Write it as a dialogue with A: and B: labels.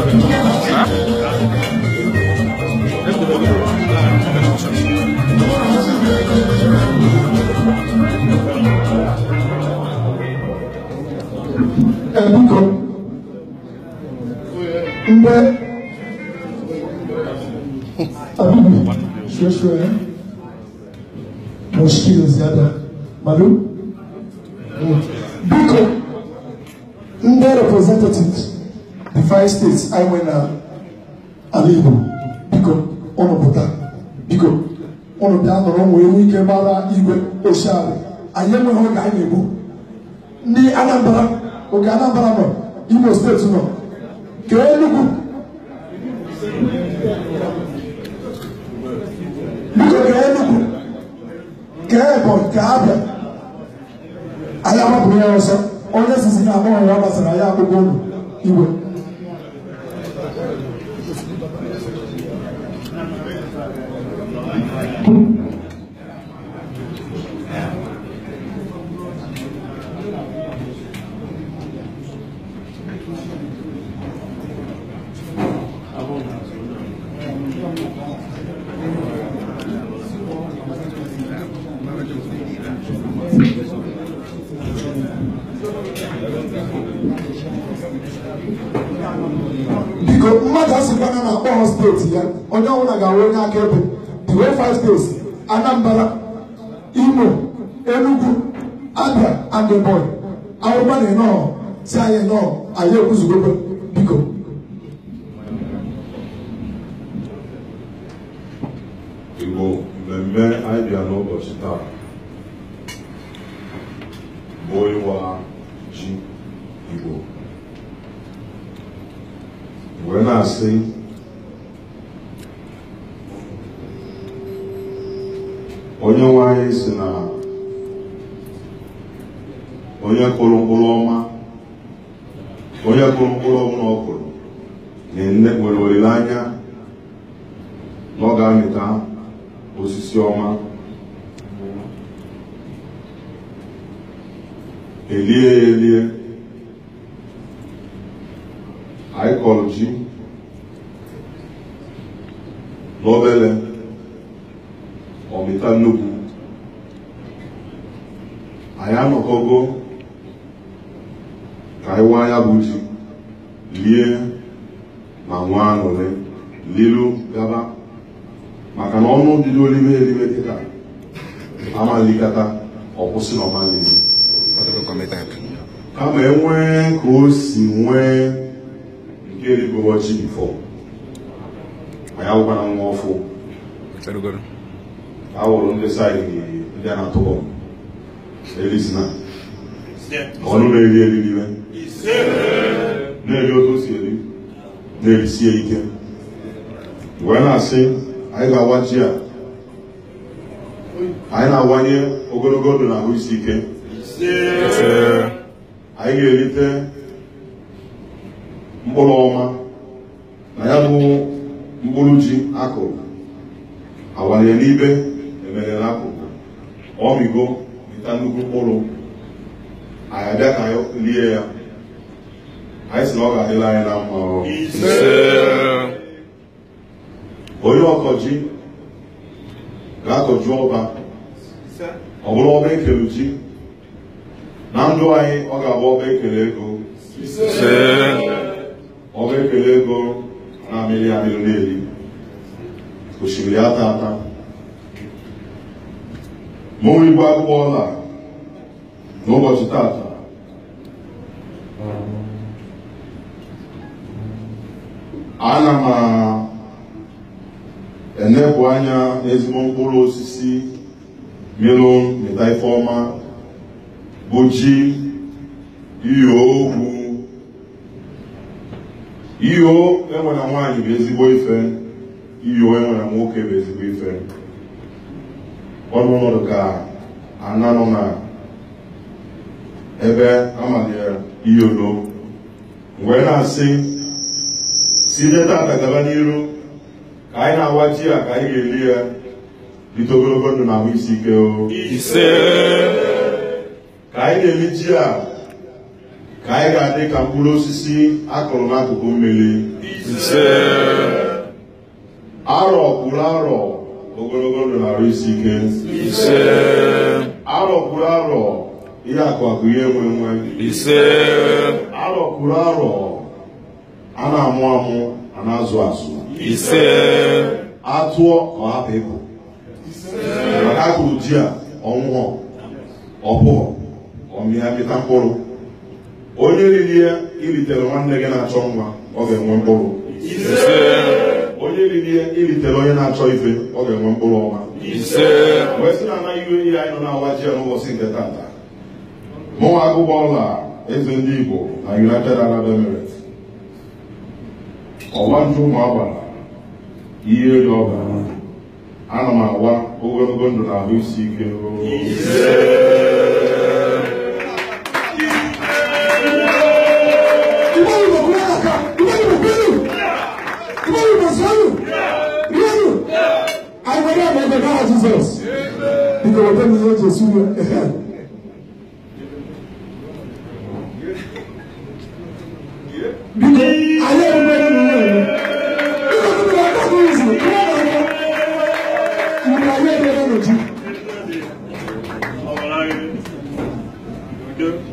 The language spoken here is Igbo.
A: ẹ̀bùkọ̀ ndẹ́ abubu ṣoṣo ẹ̀ mọ̀ṣíkìlì ziada malu biko ndẹ́ representatives five states anyị nwee na ala Igbo biko ụnụ pụta biko ụnụ bịa nọrọ nwee nwe ike gbara igwe oshialị anyị enweghị oge anyị na-egbu ndị Anambra oge Anambra nọ Imo steeti nọ kee Enugu biko kee Enugu kee Ebonyi kee Abịa anyị agbapụrụ ya ọsọ onye sizi na amụghị ya gbasara ya akwụkwọ ụlọ iwe biko mmadụ asịkwana na akpọghọ steeti ya onye ọbụla ga-awụ onye akaebe di way five steeti Anambra Imo Enugu Abia and Ebonyi awụba na enọọ si anyị nọ anyị ekwuzugokwe biko Igbo mmemme anyị bịa n'ụbọchị taa bụ ịwa ji igbo wee na-asị onye nwe si na onye kụrụ mkpụrụ ọma onye kụrụ mkpụrụ ọbụla ọ kụrụ nwere olileanya na ọ ga-amịta osisi ọma elie ya elie anyị kọrọ ji n'obere ọmịta nnukwu anyị anọkọgo ka anyị ya bụ ji lie ma nwa aṅụrị lilu gaba maka na ọnụ dị n'olime elime kịta amalikata ọkwụsị na ọmalizi committed. kama enwe ka o si nwee nke rigoro chi anyị ya na nwa ọfụ a wụrụ ndị saịdị ndị a na-atụ bọmbụ elisina ọnụ na-eri eri n'ime na-eri otu si eri na-erisie ike wee na-asị anyị ga agwa ji a anyị na-awanye ogologo ndụ na ahụ isi ike anyị ga-erite mkpụrụ ọma na ya bụ mkpụrụ ji akụrụ awalie n'ibe emere na akụrụ ọrịgo dịta nnukwu mkpụrụ anyị abịa ka lie ya anyị si na ọ ga-adịla anyị na mma onye ọkọji ga-akọju ọba ọ bụrụ ọba ekelu ji na ndụ anyị ọ ga-abụ ọba ekele ego ọba ekele ego na-amịrị amịrị n'eli osimiri ata ata ma onwe ibu ọla n'ụbọchị tata ana m enepụ anya n'ezigbo mkpụrụ osisi melon na bụ ji iyo okwu iyo enwe nwanyị bụ ezigbo ife iyo enwere nwoke bụ ezigbo ife ọnụụlọ ka ana nọ na ebe amalitere iyolo wee na-asị site tata gaba n'iru ka anyị na-awa ji a ka anyị ga eri ya bite ogologo ndụ na ahụ isi ike o ise ka anyị na eme ji a ka anyị ga-adị ka mkpụrụ osisi akụrụ n'akụkụ mmiri arọ kwuru arọ ogologo ndụ na-arụ isi ike arọ kwuru arọ ihe akụ akụ ihe enwe enwe arọ kwuru arọ a na-amụ amụ a na-azụ azụ atụọ ka ọ hapụ ịbụ maka akụrụ ji a ọnwụhọ ọbụghọ ọmịa mịta mkpụrụ onye riri ya ilitere nwanne gị na-achọ nwa ọ ga-enwe mkpụrụ onye riri ya ilitere onye na-achọ ife ọ ga-enwe mkpụrụ ọma Mgbe sị na anaghị iwe ihe anyị nọ na-awa ji n'ụbọchị nke tata mụnwa agụba ọla eze ndị Igbo na United Arab Emirates ọgba nju ụmụ agbara ihe eri ọbara ana m agwa ogologo ndụ na ahụ isi ike ruo. Jesus. Because whatever you know, Jesus will help. Yeah.